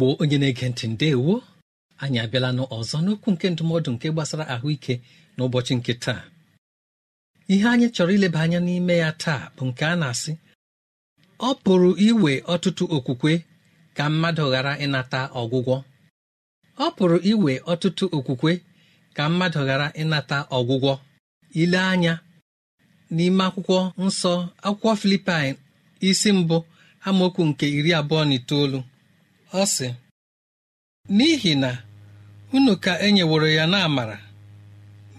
igbo onye na-ege ntị ndewo anyị abịala n'ọzọ n'okwu nke ndụmọdụ nke gbasara ahụike n'ụbọchị nke taa ihe anyị chọrọ ileba anya n'ime ya taa bụ nke a na-asị ọ pụrụ iwe ọtụtụ okwukwe ka mmadụ ghara ịnata ọgwụgwọ ọ pụrụ iwe ọtụtụ okwukwe ka mmadụ ghara ịnata ọgwụgwọ ile anya n'ime akwụkwọ nsọ akwụkwọ filipin isi mbụ amaokwu nke iri abụọ na itoolu ọ sị n'ihi na unu ka e nyeworo ya n'amara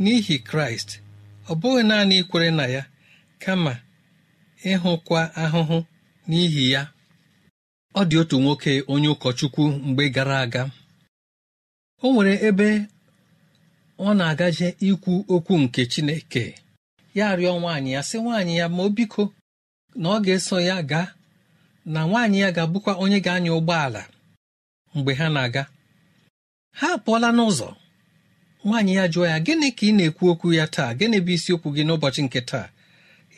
n'ihi kraịst ọ bụghị naanị ikwere na ya kama ịhụkwa ahụhụ n'ihi ya ọ dị otu nwoke onye ụkọchukwu mgbe gara aga o nwere ebe ọ na-agaje ikwu okwu nke chineke ya rịọ nwaanyị ya sị nwaanyị ya ma o biko na ọ ga-eso ya gaa na nwaanyị ya ga-abụkwa onye ga-anya ụgbọala mgbe ha na-aga ha apụọla n'ụzọ nwaanyị ya jụọ ya gịnị ka ị na-ekwu okwu ya taa gịnị bụ isiokwu gị n'ụbọchị nke taa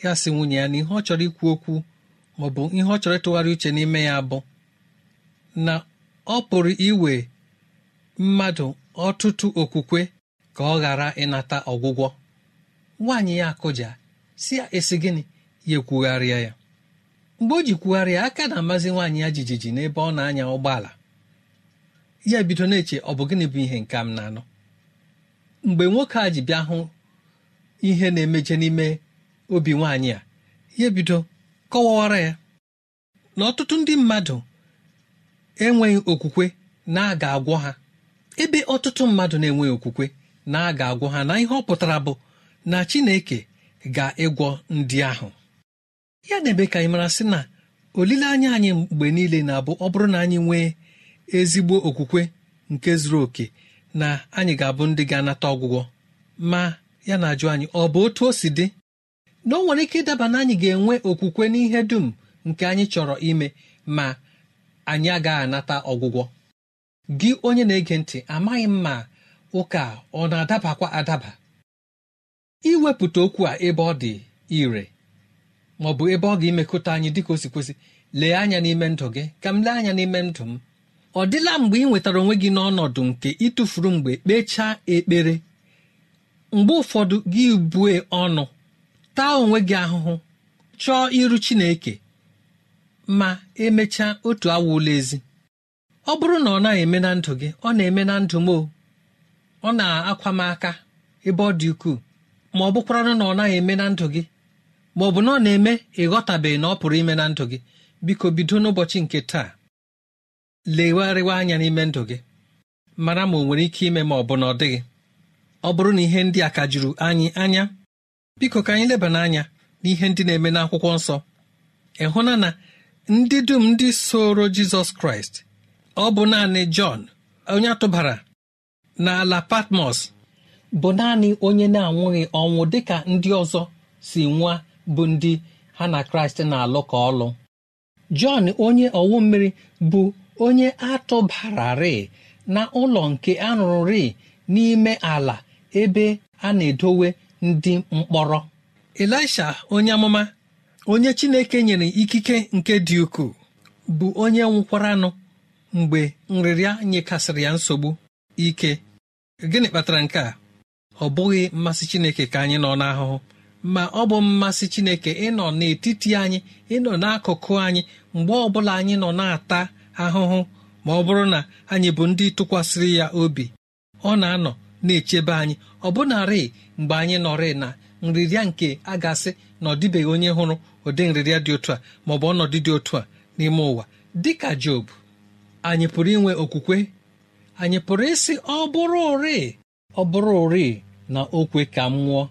ya sị nwunye ya na ihe ọ chọrọ ikwu okwu ma ọ bụ ihe ọ chọrọ ịtụgharị uche n'ime ya bụ na ọ pụrụ iwe mmadụ ọtụtụ okwukwe ka ọ ghara ịnata ọgwụgwọ nwaanyị ya akụja si ya esi gịnị ya ekwugharịa ya mgbe o ji kwugharịa aka na-amazi nwaanyị ya jijiji n'ebe ọ na-anya ụgbọala ya bido na-eche ọ bụ gịnị bụ ihe nke m na-anọ mgbe nwoke a ji bịa hụ ihe na-emeje n'ime obi nwaanyị a ya bido kọwawara ya na ọtụtụ ndị mmadụ enweghị okwukwe na-aga agwọ ha ebe ọtụtụ mmadụ na-enweghị okwukwe na ga agwọ ha na ihe ọ pụtara bụ na Chineke ga-ịgwọ ndị ahụ ya na-eme ka anyị mara sị na olileanya anyị mgbe niile na-abụ ọ bụrụ na anyị nwee ezigbo okwukwe nke zuru oke na anyị ga-abụ ndị ga-anata ọgwụgwọ ma ya na-ajụ anyị ọ bụ otu o si dị na o nwere ike ịdaba na anyị ga-enwe okwukwe n'ihe dum nke anyị chọrọ ime ma anyị agaghị anata ọgwụgwọ gị onye na-ege ntị amaghị m ma ụka ọ na-adabakwa adaba iwepụta okwu a ebe ọ dị ire ma ọ bụ ebe ọ ga-emekọta anyị dịka o si kwesị lee anya n'ime ndụ gị ka m lee anya n'ime ndụ m ọ dịla mgbe ị nwetara onwe gị n'ọnọdụ nke ịtụfuru mgbe kpechaa ekpere mgbe ụfọdụ gị bue ọnụ taa onwe gị ahụhụ chọọ iru chineke ma emechaa otu awa ụlọ ezi ọ bụrụ na ọ naghị eme na ndụ gị ọ na-eme na ndụ m o ọ na-akwa m aka ebe ọ dị ukwuu ma ọ bụkwaranụ na ọ naghị eme na ndụ gị ma ọ bụ na ọ na-eme ịghọtabeghị na ọ pụrụ ime na ndụ gị biko bido n'ụbọchị nke taa legharịwa anya n'ime ndụ gị mara ma ọ nwere ike ime ma ọ bụ na ọ dịghị ọ bụrụ na ihe ndị a ka juru anyị anya biko ka anyị leba n'anya n'ihe ndị na-eme n'akwụkwọ nsọ ịhụna na ndị dum ndị soro jizọs kraịst ọ bụ naanị jọn onye atụbara ala patmos bụ naanị onye na-anwụghị ọnwụ dịka ndị ọzọ si nwa bụ ndị ha na kraịst na-alụ ka ọlụ jọn onye ọwụ mmiri bụ onye atụbararị na ụlọ nke anụrụ rịị n'ime ala ebe a na-edowe ndị mkpọrọ elisha onye amụma onye chineke nyere ikike nke dị ukwuu bụ onye nwụkwara nụ mgbe nrịrịa nyekasịrị ya nsogbu ike gịnị kpatara nke a ọ bụghị mmasị chineke ka anyị nọ n'ahụhụ ma ọ bụ mmasị chineke ịnọ n'etiti anyị ịnọ n'akụkụ anyị mgbe ọbụla anyị nọ na-ata ahụhụ ma ọ bụrụ na anyị bụ ndị tụkwasịrị ya obi ọ na-anọ na-echebe anyị ọ bụnarị mgbe anyị nọrị na nrịrịa nke a gasị na ọ dịbeghị onye hụrụ ụdị nrịrịa dị otu a maọ bụ ọnọdụ dị otu a n'ime ụwa dị ka Job anyị pụrụ inwe okwukwe anyị pụrụ ịsị ọ bụrụ ọbụrụ ọ bụrụ na okwe ka m nwụọ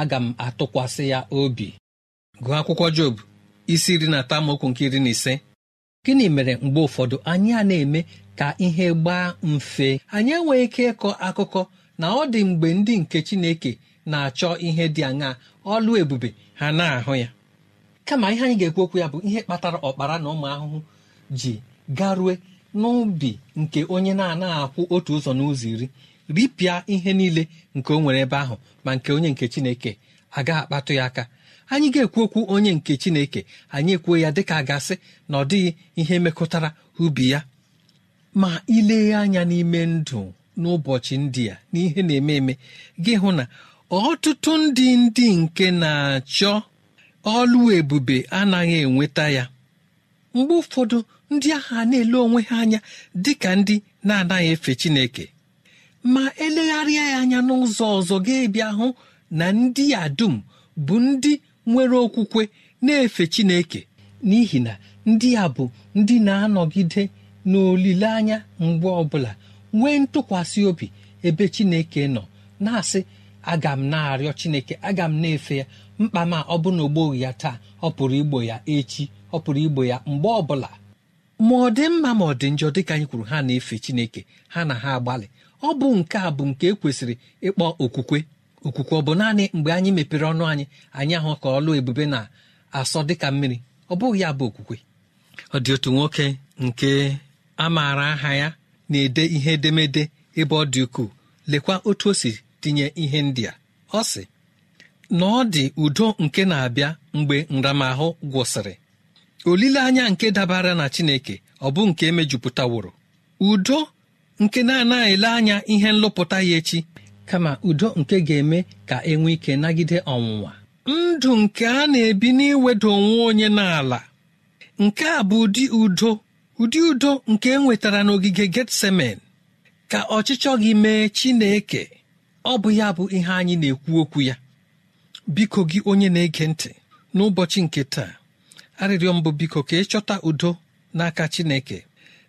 aga m atụkwasị ya obi gụọ akwụkwọ Job isi iri na atọ amaokwu nke iri na ise gịnị mere mgbe ụfọdụ anyị a na-eme ka ihe gbaa mfe anyị enweghị ike ịkọ akụkọ na ọ dị mgbe ndị nke chineke na-achọ ihe dị aṅaa ọlụ ebube ha na-ahụ ya kama ihe anyị ga-ekwu okwu ya bụ ihe kpatara ọkpara na ụmụ ahụhụ ji garue n'ubi nke onye na-anaghị akwụ otu ụzọ n'ụzọ iri ripịa ihe niile nke o nwere ebe ahụ ma nke onye nke chineke agaghị akpatụ ya aka anyị ga-ekwu okwu onye nke chineke anyị ekwuo ya dịka gasị na ọ dịghị ihe mekọtara ubi ya ma ileghe anya n'ime ndụ n'ụbọchị ndị a n'ihe na-eme eme gị hụ na ọtụtụ ndị ndị nke na-achọ ọlụ ebube anaghị enweta ya mgbe ụfọdụ ndị agha na-ele onwe ha anya dị ka ndị na-anaghị efe chineke ma elegharịa ya anya n'ụzọ ọzọ ga-ebịa hụ na ndị a dum bụ ndị nwere okwukwe na-efe chineke n'ihi na ndị a bụ ndị na-anọgide n'olileanya mgbe ọbụla nwee ntụkwasị obi ebe chineke nọ na-asị aga m na-arịọ chineke aga m na-efe ya mkpa ma ọ bụ na ya taa ọ pụrụ igbo ya echi ọ pụrụ igbo ya mgbe ọbụla ma ọ dị mma ma ọ dị njọ dịka anyị kwuru ha na-efe chineke ha na ha agbalị ọ bụ nke a bụ nke ekwesịrị ịkpọ okwukwe okwukwe ọ bụ naanị mgbe anyị mepere ọnụ anyị anyị ahụ ka ọlụ ebube na-asọ dịka mmiri ọ bụghị ya bụ okwukwe ọ dị otu nwoke nke a maara aha ya na-ede ihe edemede ebe ọ dị ukwuu lekwa otu o si tinye ihe ndị a ọ sị na ọ dị udo nke na-abịa mgbe nramahụ gwụsịrị olileanya nke dabara na chineke ọ bụ nke e mejupụtaworo? udo nke na-anaghị ele anya ihe nlụpụta ya echi kama udo nke ga-eme ka enwe ike nagide ọnwụnwa ndụ nke a na-ebi n'iweda onwe onye n'ala nke a bụ ụdị udo ụdị udo nke e nwetara n'ogige getsemen ka ọchịchọ gị mee chineke ọ bụ ya bụ ihe anyị na-ekwu okwu ya biko gị onye na-ege ntị n'ụbọchị nke taa arịrịọ mbụ biko ka ịchọta udo n'aka chineke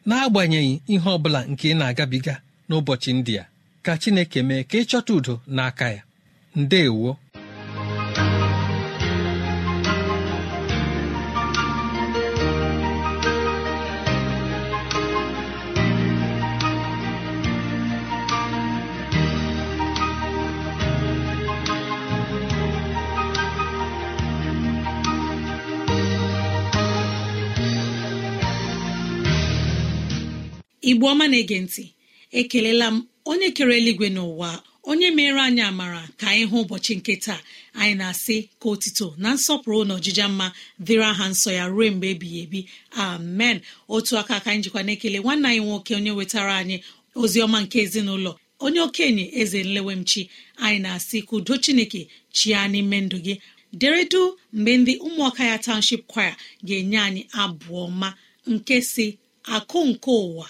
n'agbanyeghị ihe ọ bụla nke ị na-agabiga n'ụbọchị ndị a ka chineke mee ka ịchọta udo n'aka ya ndeewo. igbo ọma na-ege ntị ekelela m onye kere eluigwe n'ụwa onye mere anyị amara ka anyị hụ ụbọchị nke taa anyị na-asị ka otito na nsọpụrụ na ọjija mma dịrị aha nsọ ya ruo mgbe ebighị ebi amen otu aka aka anyị jikwa na-ekele nwanne anyị nwoke onye wetara anyị ozi ọma nke ezinụlọ onye okenye eze nlewemchi anyị na-asị ka udo chineke chia n'ime ndụ gị deredu mgbe ndị ụmụaka ya township kwaya ga-enye anyị abụọ ma nke si akụ nke ụwa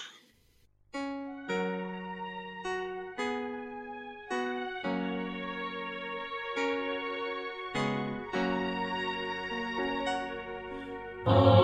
Oh.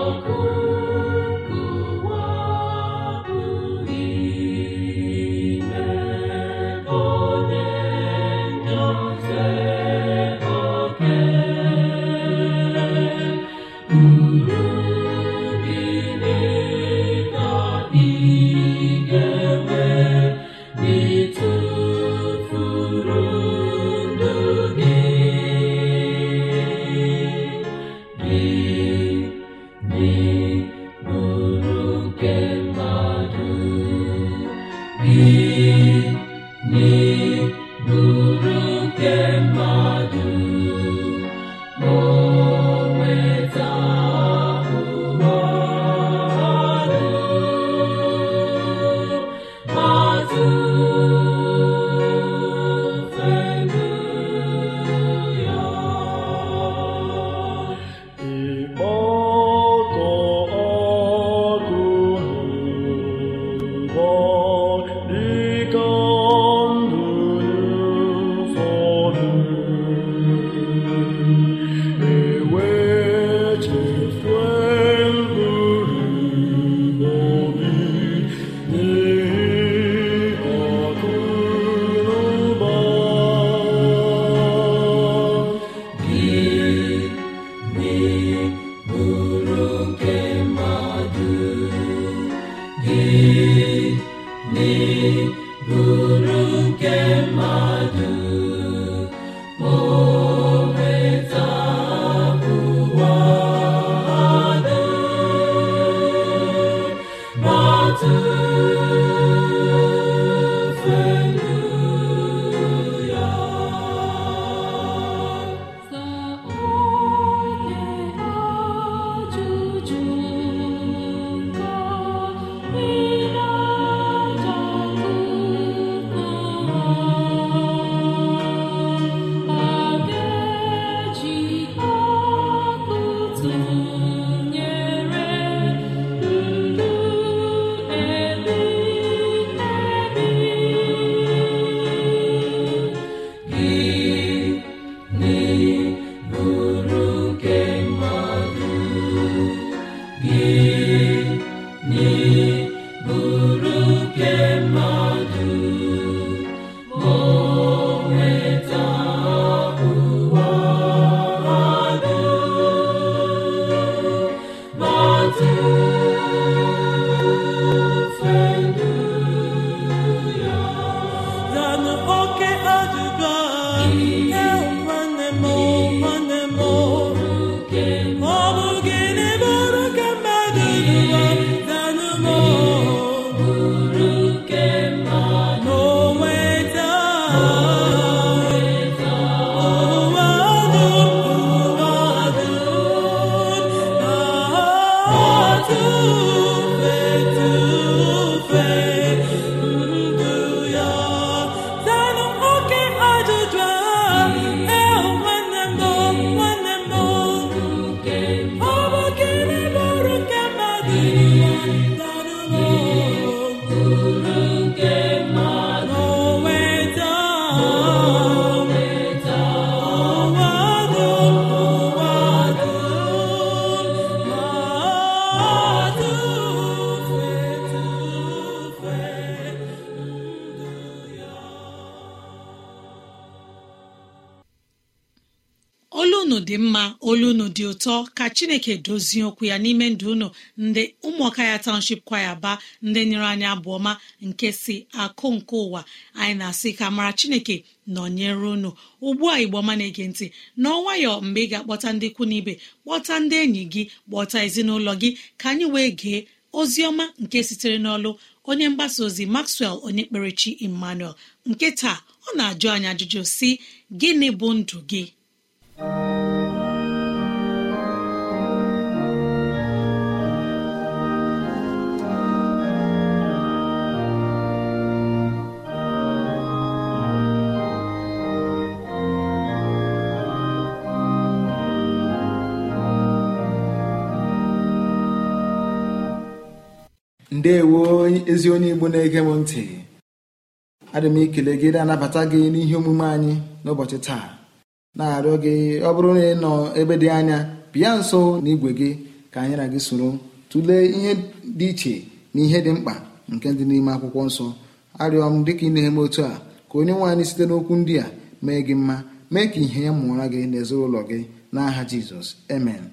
Amen. atọ ka chineke dozie okwu ya n'ime ndụ unu ndị ụmụọka ya township kwaya baa ndị nyere anyị abụọma nke si akụ nke ụwa anyị na-asị ka mara chineke nọnyere unu ugbu a igbo ọma na-ege ntị n'ọnwayọ mgbe ị ga-akpọta ndị ikwu n'ibe kpọta ndị enyi gị kpọta ezinụlọ gị ka anyị wee gee ozi ọma nke sitere n'ọlụ onye mgbasa ozi maxwell onye kperechi emmanuel nke taa ọ na-ajụ anyị ajụjụ si gịnị bụ ndụ gị ndewo ezi onye igbo na-ege m ntị adị m ikele gị na-anabata gị n'ihe omume anyị n'ụbọchị taa na-arịọ gị ọ bụrụ na ị nọ ebe dị anya bịa nso na igwe gị ka anyị na gị soro tụlee ihe dị iche na ihe dị mkpa nke dị n'ime akwụkwọ nsọ arịọ m dịka ị eme otu a ka onye nwe anyị site n'okwu ndị a mee gị mma mee ka ihe ya mụọra gị n'ezinụlọ gị n'aha jizọs amen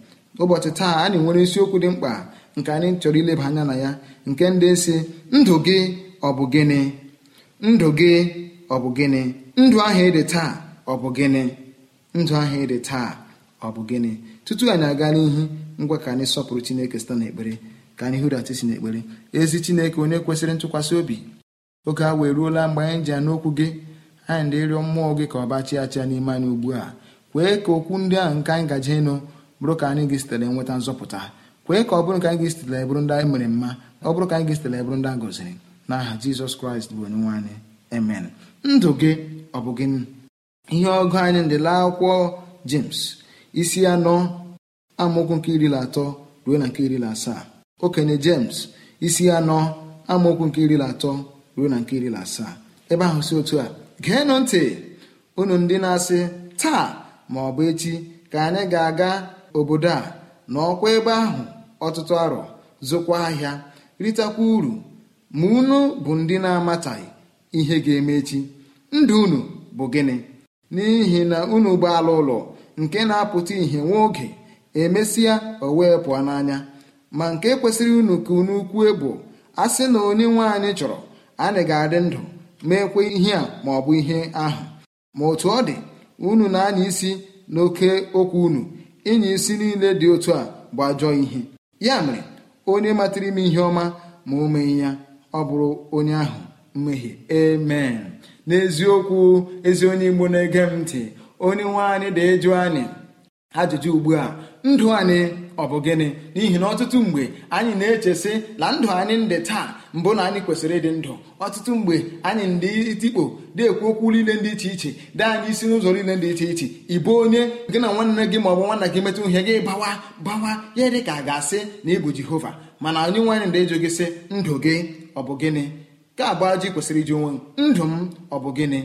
ụbọchị taa anyị nwere isiokwu dị mkpa nke anyị chọrọ ileba anya na ya nke ndị si ndụ gị ọ bụ gịnị ndụ gị ọ bụ gịnị ndụ ahụ ịdị taa ọ bụ gịnị ndụ ahụ ịdị taa ọ bụ gịnị tutu anyị aga n'ihu ngwa ka anyị sọpụrụ chineke site n'ekpere ka anyị hụrata isi n'ekpere ezi chineke onye kwesịrị ntụkwasị obi oge a wee ruola mgbe anyị ji n'okwu gị anyị dị ịrịọ mmụọ gị ka ọ bachi achịa n'ime anyị ugbu a kwee ka okwu ndị ahụ nke anyị gaje ịnụ bụrụ ka anyị gị sitere nweta nzọpụta kwee ka ọ bụrụ ka anyị ga-esitela bụrụ ndị anyị mere mma ọ bụrụ ka anyị ga-esitela bụrụ ndị a gọziri n'aha jizọs kraịst bụ onye nwe anyị emen ndụ gị ọ bụ gị ihe ọgụ anyị ndịla akwụkwọ james isi anọ amaokwu nke iri na atọ ruo na nke iri na asaa okenye james isi anọ amaokwu nke iri na atọ ruo na nke iri na asaa ebe ahụ si otu a geenụ ntị unu ndị na-asị taa ma ọ bụ echi ka anyị ga-aga obodo a n'ọkwa ebe ahụ ọtụtụ arọ zụkwa ahịa ritakwa uru ma unu bụ ndị na-amataghị ihe ga-eme echi ndụ unu bụ gịnị n'ihi na unu bụ ala ụlọ nke na-apụta ihe nwa oge emesịa o wee pụọ n'anya ma nke kwesịrị unu ka unu kwue bụ a sị na onye nwe anyị chọrọ anyị ga-adị ndụ meekwe ihe a maọbụ bụ ihe ahụ ma otu ọ dị unu na-anya isi n'oke okwu unu ịnya isi niile dị otu a bụ ajọ ihe ya mere onye matara ime ihe ọma ma o mee ya ọ bụrụ onye ahụ mmehie amen n'eziokwu ezi onye igbo na-ege m ntị onye nwe anyị da ịjụ anyị ajụjụ ugbu a ndụ anyị ọ bụ gịnị n'ihi na ọtụtụ mgbe anyị na-echesị na ndụ anyị ndị taa mbụ na anyị kwesịrị ịdị ndụ ọtụtụ mgbe anyị ndị itikpo ekwu okwu niile dị iche iche dị anyị isi n'ụzọ niile dị iche iche bụ onye gị na nwanne gị ma ọ bụ nwanna gị metụ ihe gị bawa bawa ya dị ka a ga-asị na ịbụ jehova mana onye nwaanyị ndị ịjụ gị sị ndụ gị ọ bụ gịnị ka abụọ ji kwesịrị iji onwe ndụ m ọ bụ gịnị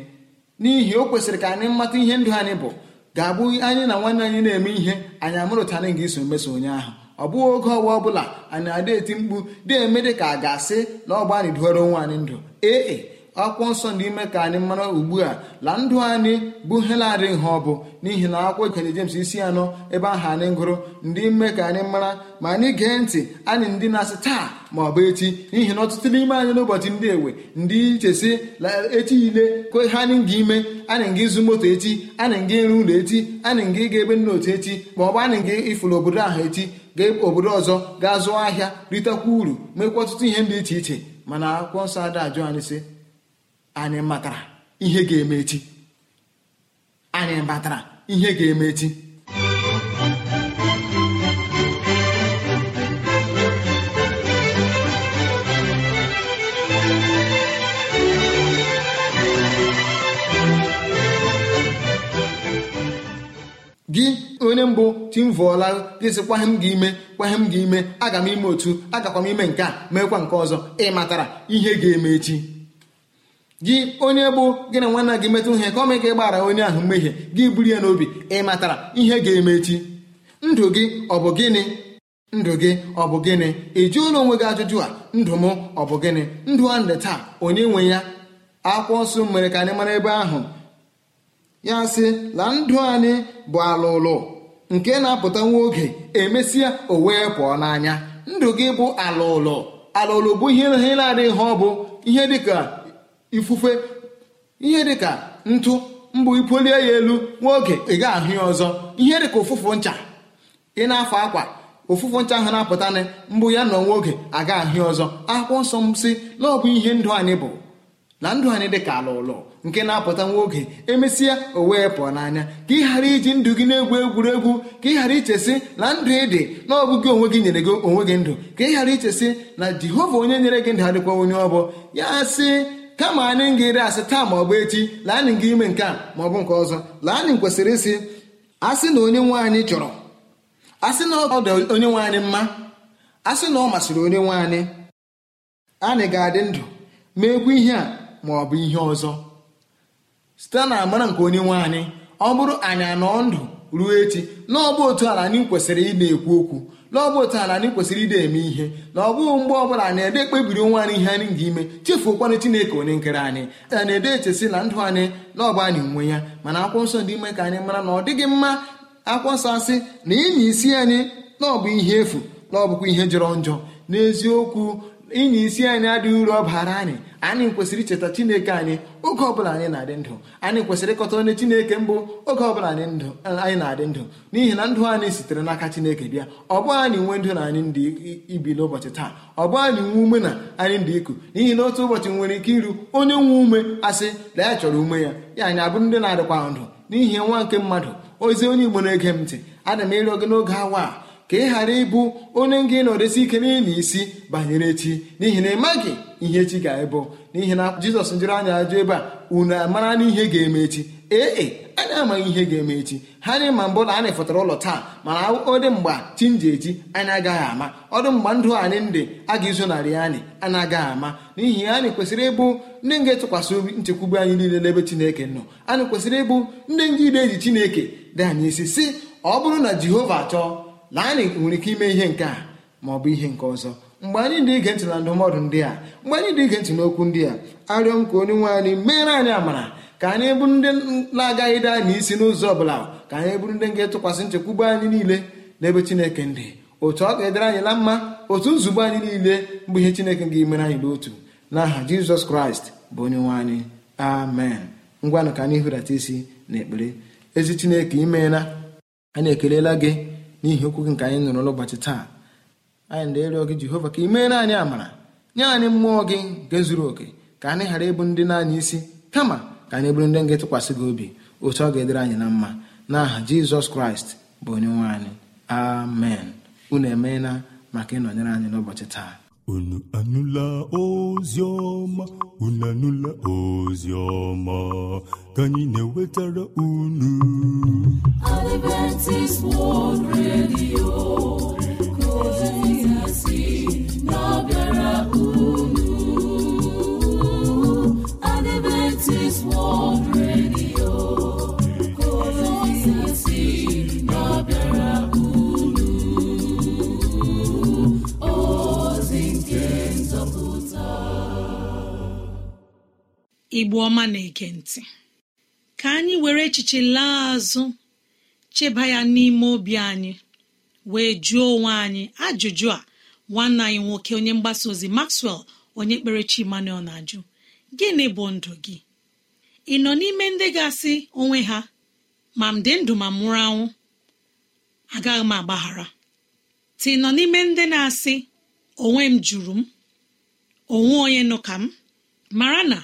n'ihi o kwesịrị ka anyị mata ihe ndụ anyị bụ ga-abụ anyị na nwanne anyị na-eme ihe anyị amụrụtara nga iso mmeso onye ahụ ọ bụghị oge ọwa ọbụla anyị na-ada eti mkpu dị eme dị ka a ga-asị na ọgba anyị duoro onwe anyị ndụ ee akwụkwọ nsọ n'ime ka anyị mara ugbu a la ndụ anyị bụ helarị ha ọ bụ n'ihi na akwụkwọ ikenye James isi anọ ebe ahụ anyị gụrụ ndị ime ka anyị mara ma anyị gee ntị anyị ndị na-asị taa ma ọ bụ echi n'ihi na ọtụtụ n'ime anyị n'ụbọchị ndị ewe ndị iche si echi ile ko ha anyị ga ime anyị nga ịzụ moto echi anyị nga ịrụ ụlọ echi anyị ga ịga ebe nna otu echi ma ọ bụ anyị nga ịfụrụ obodo ahụ echi gaa obodo ọzọ gaa zụọ ahịa ritekwa uru mekwa ọtụtụ ihe dị iche iche mana akwụkwọ nsọ ada ajụ anyị sị anyị matara ihe ga-eme echi anyị matara ihe ga-eme echi gị onye mbụ timvụọla dịsị kwaghị m gị ime m gị ime aga m ime otu agakwa m ime nke a mekwa nke ọzọ ị matara ihe ga-eme echi gị onye bụ gị na nwanna gị metụ ihe ka ọ mee gbara onye ahụ mmehie gị buru ya n'obi ị matara ihe ga-eme echi ndụ gị ọ bụ gịnị ndụ gị ọ bụ gịnị ị ụlọ onwe gị ajụjụ a ndụ m ọ bụ gịnị ndụ a ndị taa onye nwe ya akwụkwọ nsọ mere ka anyị mara ebe ahụ ya sị la ndụ anyị bụ ala ụlọ nke na-apụta nwa oge emesịa o wee pụọ n'anya ndụ gị bụ ala ụlọ ala ụlọ bụ ihe na-adịghị ha ọ bụ ihe dịka ifufe ihe dịka ntụ mbụ ipolie ya elu nwa oge ị ga ahụ ya ọzọ ihe dịka ụfụfụ ncha ị na-afọ akwa ụfụfụ ncha ahụ na-apụtanị mbụ ya nọ nwa oge aga ahụ ya ọzọ akwụkwọ nsọ m si na ọ bụ ihe ndụ anyị bụ na ndụ anyị dị ka ala ụlọ nke na-apụta nwa oge emesịa o wee pụọ n'anya ka ị ghara iji ndụ gị na-egwu egwuregwu ka ị ghara ichesị na ndụ ị dị na ọ onwe gị nyere gị onwe gị ndụ ka ị ghara ichesị na jehova onye nyere gị ndụ adịkwa onye ọ ya si kama anyị ga-eri asị taa ma ọ bụ echi lanị anyị ga ime nke a ma ọ bụ nke ọzọ laa anyị kwesịrị ịsị asị na onye nwe anyị chọrọ asị na ọ dị onye nwe anyị mma asị na ọ masịrị onye nwe anyị anyị ga-adị ndụ meekwu ihe a ma ọ bụ ihe ọzọ site na amara nke onye nwe anyị ọ bụrụ anyị anọ ndụ ruo echi na ọ bụ otu ala anyị kwesịrị ị na-ekwu okwu na ọ bụ otu ala anyị kwesịrị ide eme ihe na ọ bụghị mgbe ọbụla na-ede ekpebiri onwe anyị ihe anyị ga-ime chefuokwanụ chineke onye nkere anyị a na-ede echesi na ndụ anyị na ọbụ anyị nwe ya mana akwụkwọ nsọ dị ime ka anyị mara na ọ dịghị mma akwụkwọ nsọ asị na ịnya isi anyị na ọ bụ ihe efu na ọ bụkwa ihe jọrọ njọ n'eziokwu ịnye isi anyị adịghị uru ọ bara anyị anyị kwesịrị icheta chineke anyị oge ọbụla anyị na-adị ndụ anyị kwesịrị ịkọta onye chineke mbụ oge ọbụla anyị na-adị ndụ n'ihi na ndụ anyị sitere n'aka chineke bịa ọ anyị nwe ndụ na anyị ndị ibi n'ụbọchị taa ọ anyị nwe ume na anyị ndị iku n'ihi na otu ụbọchị nwere ike iru onye nwe ume asị na ya chọrọ ume ya ya anyị abụrụ ndị na-adịkwa ndụ n'ihi nwa nke mmadụ ozi onye igbo na-ege m ntị adị m ịrịọ gị n'oge awa a ka ị ghara ịbụ onye nga ịnọdesi ike n'ili isi banyere echi n'ihi na ịmaghị ihe echi ga-ebụ n'ihi na jizọs jụrụ anya ajụ ebe a unu amara n'ihe ga-eme echi ee e, anyị amaghị ihe ga-eme echi ha na ma mbụ na anyị fọtara ụlọ taa mana ọ dị mgbe chi nji eji anyị agaghị ama ọ dị mgbe ndụ anyị ndị a ga narị anyị a na-agaghị ama n'ihi anyị kwesịrị ịbụ ndị nga etụkwasị obi nchekwube anyị niile n'ebe chineke nọ anyị kwesịrị ịbụ ndị nga ide eji chineke dị anyị isi si ọ bụrụ na jehova chọọ na anyị nwere ike ime ihe nke a ma ọ bụ ihe nke ọzọ mgbe anyị dị ige ntị na ndụmọdụ ndị a mgbe anyị dị ige ntị n'okwu ndị a arịọ m ka onye nwe anyị meere anyị amara ka anyị bụrụ ndị na-agaghị daa n'isi n'ụzọ ọ bụla ka anyị bụrụ ndị ga-etụkwasị nchekwube anyị niile n'ebe chineke ndị otu ọ ga-edere anyị na mma otu nzube anyị niile bụ ihe chineke ga-emere anyị n'otu n'aha jizọs kraịst bụ onye nwe anyị amen ngwanụ ka anyị hụrata isi na ekpere ezi chineke imeela anyị ekelela gị n'ihi okwu gị nke anyị nụrụ n'ụbọchị taa anyị na-arịọ gị jehova ka ị meere anyị amara nye anyị mmụọ gị nke zuru oke ka anyị ghara ịbụ ndị naanị isi kama ka anyị bụrụ ndị nga tụkwasị gị obi otu ọ ga-edere anyị na mma n'aha jizọs kraịst bụ onye nwe anyị amen unu emeela maka ịnọnyere anyị n'ụbọchị taa unu anụla ozi ọma unu anụla ozi ọma ka anyị na-ewetara unu Adventist World Radio nke ozi si na-abịara unu Adventist World Radio igbo ọma na ege ntị ka anyị were echiche laa azụ cheba ya n'ime obi anyị wee jụọ onwe anyị ajụjụ a nwanne anyị nwoke onye mgbasa ozi maxwell onye kpere chi emmanuel na-ajụ gịnị bụ ndụ gị ị nọ n'ime ndị ga-asị onwe ha ma m dị ndụ ma mụrụ anwụ agaghị m agbaghara tị nọ n'ime ndị na-asị onwe m jụrụ m onwe onye nọ ka m mara na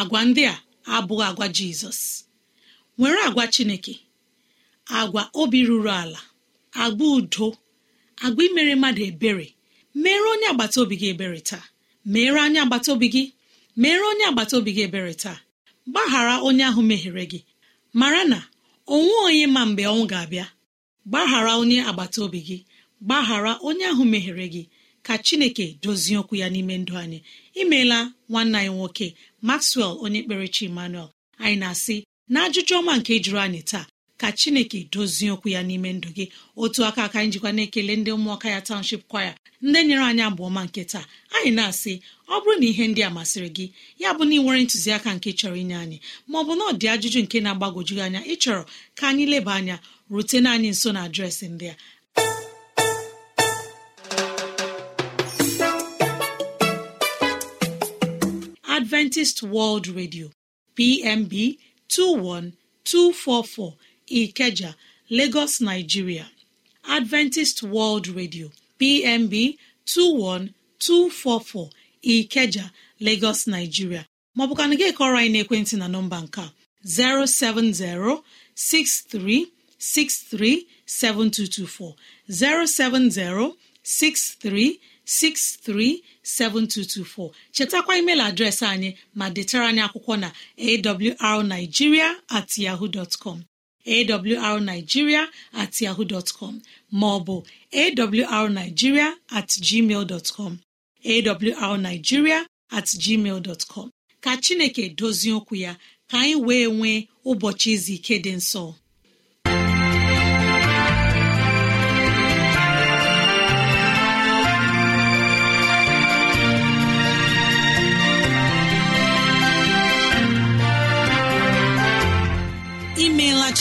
agwa ndị a abụghị agwa jizọs nwere agwa chineke agwa obi ruru ala agwa udo agwa imere mmadụ ebere mere onye agbata obi gị ebere taa mere onye agbata obi gị mere onye agbata obi gị ebere taa gbaghara onye ahụ mehiere gị mara na onwe onye ma mgbe ọnwụ ga-abịa gbaghara onye agbata obi gị gbaghara onye ahụ mehiere gị ka chineke dozie okwu ya n'ime ndụ anyị imeela nwanne anyị nwoke maxwell onye kperechi emmanuel anyị na-asị na ajụjụ ọma nke jụrụ anyị taa ka chineke dozie okwu ya n'ime ndụ gị otu aka aka njikwa na-ekele ndị ụmụaka ya township kwaya ndị nyere anyị abụ ọma nke taa anyị na-asị ọ bụrụ na ihe ndị a masịrị gị ya bụ na ị nwere ntụziaka nke chọrọ inye anyị ma ọ bụ na ọ dị ajụjụ nke na-agbagwoju anya ịchọrọ ka anyị leba anya rutena anyị nso na adreesị ndị a adventist world radio pmb 21244 ikeja lagos nigeria adventist world radio pmb 21244 ikeja lagos nigeria maọbụkana gị kọrọ anyị ekwentị na nọmba nke a 07063637224 7224 637224 chetakwa email adreesị anyị ma detara anyị akwụkwọ na awrnigeria at yahoo dọtkọm awrnigeria at yahoo dọtkọm maọbụ awrnigeria at gmail dọtkọm at gmail dọtkọm ka Chineke dozie okwu ya ka anyị wee nwee ụbọchị izu ike dị nsọ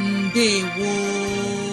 mbe gbo